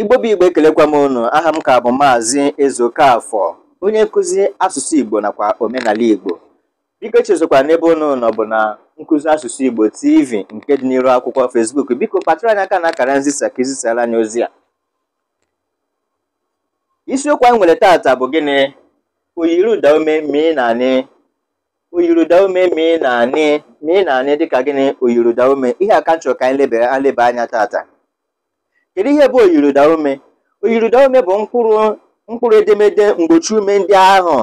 igbo bụ igbo ekelekwa m ụnụ aha m ka bụ maazị Ezokafọ onye nkụzi asụsụ igbo nakwa omenala igbo biko chezokwa n'ebe ụnụ nọ bụ na nkụzi asụsụ igbo tv nke dị n'iru akwụkwọ fesbuk biko kpatara anyị aka na akara nzisa ka izisara anyị ozi a isiokwu anyị nwere tata bụ gịnị oyiruda ume mee na-anị oyiruda ume mee na-anị mee na-anị dịka gịnị oyiruda ume ihe aka nchọrọ ka anyị lebara anya tata kedu ihe bụ oyiriụda ume oyiruda ume bụ mkpụrụ mkpụrụ edemede mgbochi ume ndị ahụ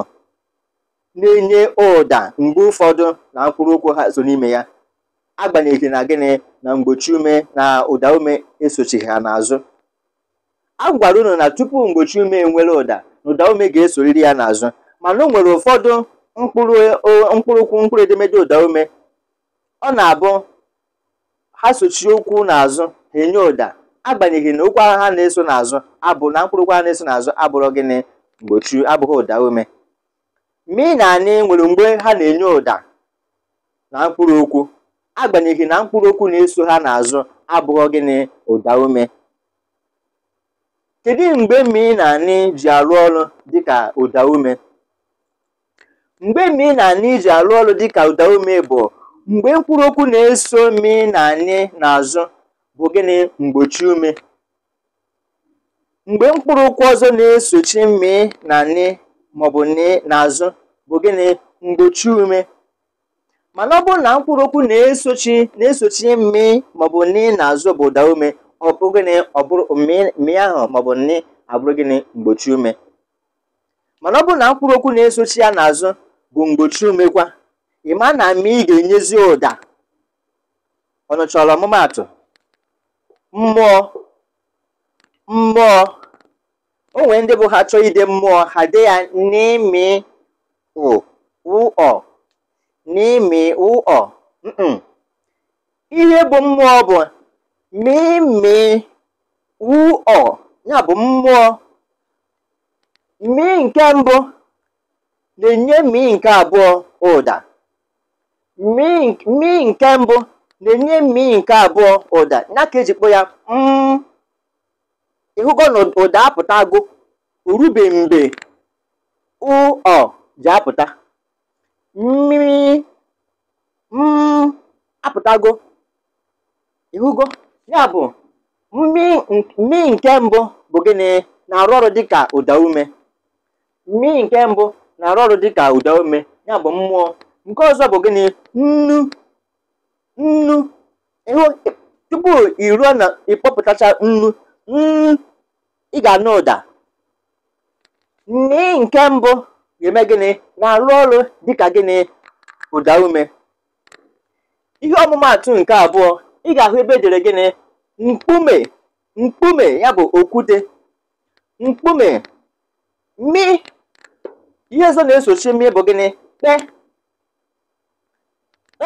na-enye ụda mgbe ụfọdụ na mkpụrụ ụkwụ ha so n'ime ya agbanyeghị na gịnị na mgbochi ume na ụda ume esochighị ha n'azụ a gwara unu na tupu mgbochi ume enwere ụda na ụda ume ga-esoriri ya n'azụ mana o nwere ụfọdụ mkpụrụ mkpụrụ ụkwụ mkpụrụ edemede ụda ume ọ na-abụ ha sochie ụkwụ n'azụ ha enye ụda agbanyeghị na okwu agha ha na-eso n'azụ abụ na mkpụrụ okwu ha na-eso n'azụ abụrụ gịnị mgbochi abụghị ụda ume ị na anyị nwere mgbe ha na-enye ụda na mkpụrụ okwu agbanyeghị na mkpụrụ okwu na-eso ha n'azụ abụghị gịnị ụda ume kedu mgbe mi na anyị ji arụ ọrụ dịka ụda ume mgbe mi na anyị ji arụ ọrụ dịka ụda ume bụ mgbe mkpụrụ okwu na-eso mi na anyị n'azụ bụ gịnị mgbochi ume mgbe mkpụrụ ụkwụ ọzọ na-esochi mmi na nị maọbụ nị n'azụ bụ gịnị mgbochi ume mana ọ bụrụ na mkpụrụ okwu na-esochi na-esochi mmi maọbụ nị n'azụ bụ ụda ume ọ bụ gịnị ọbụrụ bụrụ mmi ahụ maọbụ nị abụrụ gịnị mgbochi ume mana ọ bụrụ na mkpụrụ okwu na-esochi ya n'azụ bụ mgbochi ume kwa ịma na mmi ị ga-enyezi ụda Ọ ọnụchọrọ ọmụmaatụ mmụọ mmụọ o ndị bụ ha chọọ ide mmụọ ha de ya n'imi ụọ n'imi ụọ ihe bụ mmụọ bụ mimi ụọ ya bụ mmụọ mi nke mbụ na-enye mi nke abụọ ụda mi nke mbụ na-enye mmiri nke abụọ ụda ya ka eji kpọ ya m mm. ịhụgo na ụda agụ orube mgbe ụọ ji apụta mmiri m mm, apụtago ịhụgo ya bụ mmiri nke mbụ bụ gịnị na-arụ ọrụ dịka ụda ume mmiri nke mbụ na-arụ ọrụ dịka ụda ume ya bụ mmụọ nke ọzọ bụ gịnị nnu nnu tupu ị ruo na ịkpọpụtacha nnu ị ga-anụ ụda nni nke mbụ ga-eme gịnị na-arụ ọrụ dịka gịnị ụda ume ihe ọmụmaatụ nke abụọ ị ga-ahụ ebe edere gịnị mkpume mkpume ya bụ okwute mkpume mi ihe ọzọ na-esochi mi bụ gịnị kpe.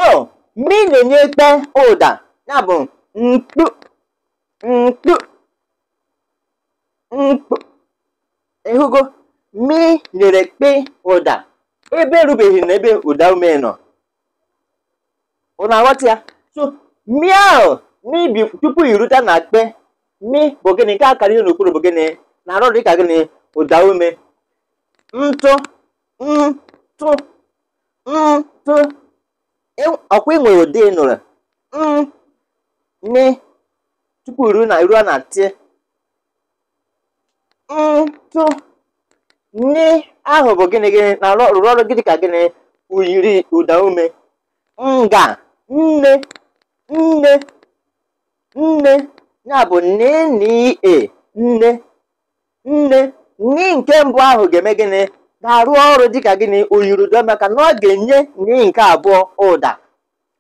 Oh! mmiri na kpe ụda ya bụ mkpu mkpu mkpu ịhụgo mi nyere kpe ụda ebe erubeghị na ebe ụda ume nọ ụna aghọta ya so mmiri ahụ mmiri tupu irute na kpe mi bụ gịnị nke akara ihe n'okpuru bụ gịnị na-arụ dịka gịnị ụda ume ntụ ntụ ntụ ọkwa ị nwere ụdị nụrụ tupu ruo na ruo na ti ntụ nị ahụ bụ gịnị gịnị na rụrụ ọrụ gịnị ka gịnị uyiri ụda ume nga nne nne nne ya bụ nne nne nne nne nke mbụ ahụ ga-eme gịnị ga-arụ ọrụ dịka gịnị oyirudo maka na ọ ga-enye n'ihi nke abụọ ụda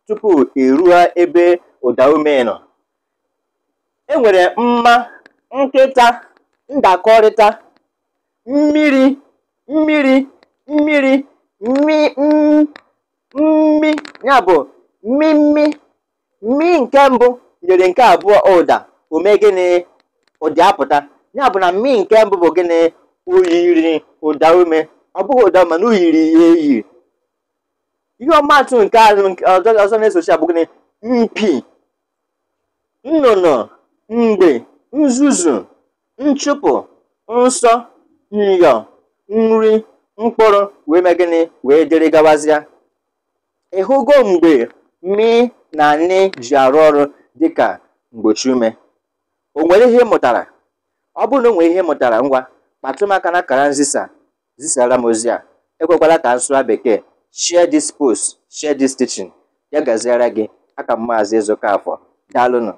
tupu eruo ebe ụda ume nọ e nwere mma nkịta ndakọrịta mmiri mmiri mmiri mmi ya bụ mmimmi mmi nke mbụ nyere nke abụọ ụda ume gịnị ụdị apụta ya bụ na mmi nke mbụ bụ gịnị oyiri ụda ume ọ bụghị ụda mana o e yiri ya eyi ihe ọmatụ nke azụ ọzọ na-esochi abụ gịnị mpi nnụnụ mgbe nzuzu nchụpụ nsọ nyo nri mkpụrụ wee mee gịnị wee dịrị gawazịa ịhụgo mgbe mi na nne ji arụ ọrụ dịka mgbochi ume o nwere ihe mụtara ọ bụrụ na o nwere ihe mụtara ngwa kpatụrụ m aka na akara zisara m ozi a ekwekwala ka nsụwa bekee share this post share this teaching ya gaziara gị aka m maazị ka Afọ daalụnụ